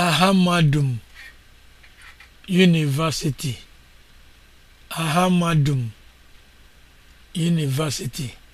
Ahamadım University Ahamadım University